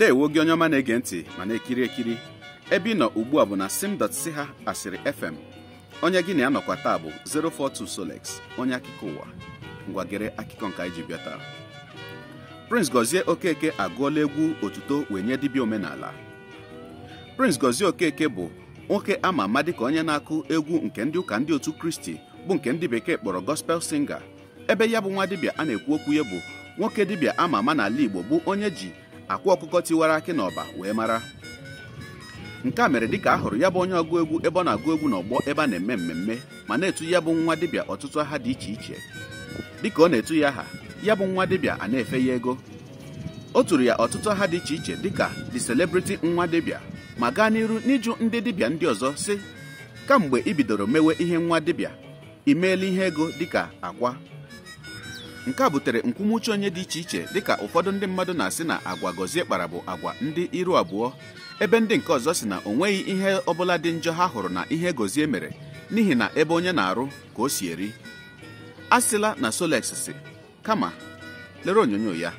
ewu gị onye ọma na-ege ntị ma na-ekiri ekiri ebe ị nọ ugbu a bụ na sim.ch ha asịrị fm onye gị na ya nọkwa taa bụ 042 Solex onye akụkọ ụwa ngwagere akụkọ nke anyị ji bịa taa Prince Gozie Okeke agụọla egwu otuto wee nye dibịa omenala Prince Gozie Okeke bụ nwoke ama ama dịka onye na-akụ egwu nke ndị ụka ndị otu Kristi bụ nke ndị bekee kpọrọ gospel singa ebe ya bụ nwa dibịa a na-ekwu okwu ya bụ nwoke dibịa ama ama n'ala Igbo bụ onye ji akwa ọkụkọ tiwara akị n'ọba ọba wee mara nke a mere dịka a hụrụ ya bụ onye ọgụ egwu ebe ọ na-agụ egwu n'ọgbọ ebe a na-eme mmemme ma na-etu ya bụ nwa dịbịa ọtụtụ aha dị iche iche dịka ọ na-etu ya aha ya bụ nwa dịbịa a na-efe ya ego o tụrụ ya ọtụtụ aha dị iche iche dịka the celebrity nwa dịbịa ma gaa n'iru n'ịjụ ndị dịbịa ndị ọzọ si kamgbe ị bidoro mewe ihe nwa dịbịa imeela ihe ego dịka akwa nke a butere nkwumuche onye dị iche iche dịka ụfọdụ ndị mmadụ na-asị na agwa gọzie kpara bụ agwa ndị iru abụọ ebe ndị nke ọzọ si na o nweghị ihe ọbụla dị njọ ha hụrụ na ihe gọzie mere n'ihi na ebe onye na-arụ ka o si eri a sịla na solex si kama lere onyonyo ya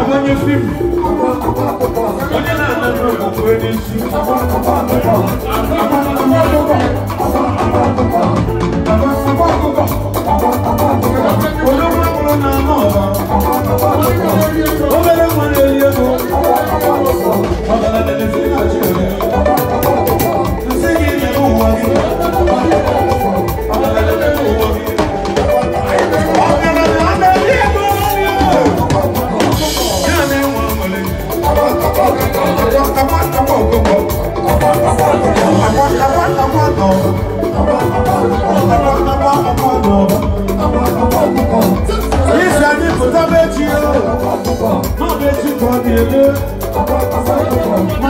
na-agbanye fim onye I'm okwukwe n'isi onye ọbụla bụrụ na anọ ọba Thank you.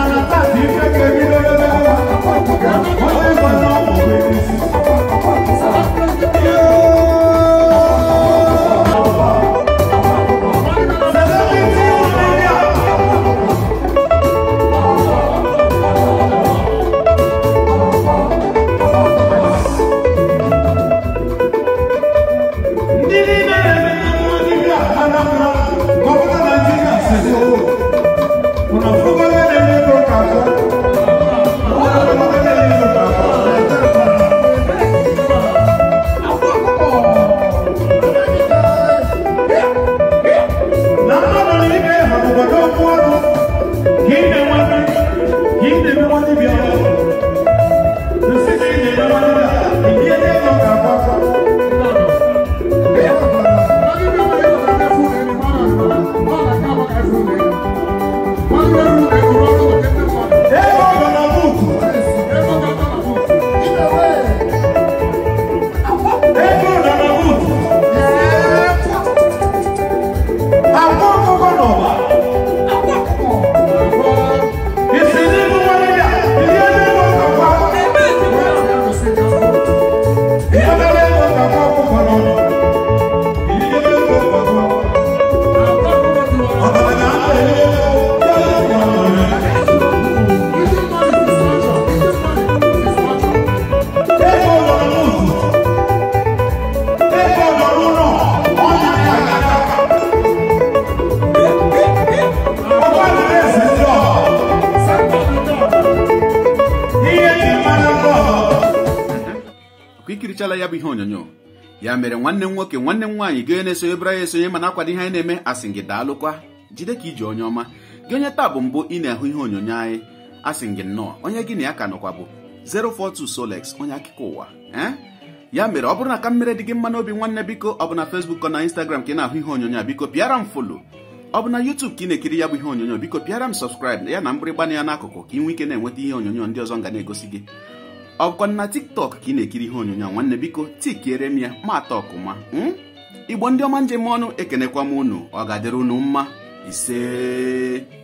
etichala ya bụ ihe onyonyo ya mere nwanne m nwoke nwanne m nwaanyị gị na-esonye bịara ya esonye mana akwado ihe anyị na-eme asị gị daalụkwa jide ka iji onye ọma gị onye taa bụ mbụ ị na-ahụ ihe onyonyo anyị asị gị nnọọ onye gị na ya ka nọkwa bụ 042 Solex onye akụkọ ụwa ee eh? ya mere ọ bụrụ na ka mmere dị gị mma n'obi nwanne biko ọ bụ na Facebook na Instagram ka ị na-ahụ ihe onyonyo a biko pịara m folo ọ bụ na YouTube ka ị na-ekiri ya bụ ihe onyonyo biko pịara m sọpskraịb ya na mgbịrịgba na ya n'akụkụ ka ị nwee ike na-enweta ihe onyonyo ndị ọzọ ga na-egosi gị ọkwa na tiktok ka ị na-ekiri ihe onyonyo nwanne biko tikere m ya mata ọkụma hmm? igbo ndị ọma njem ọnụ ekenekwa m unu ọ ga-adịrị unu mma isee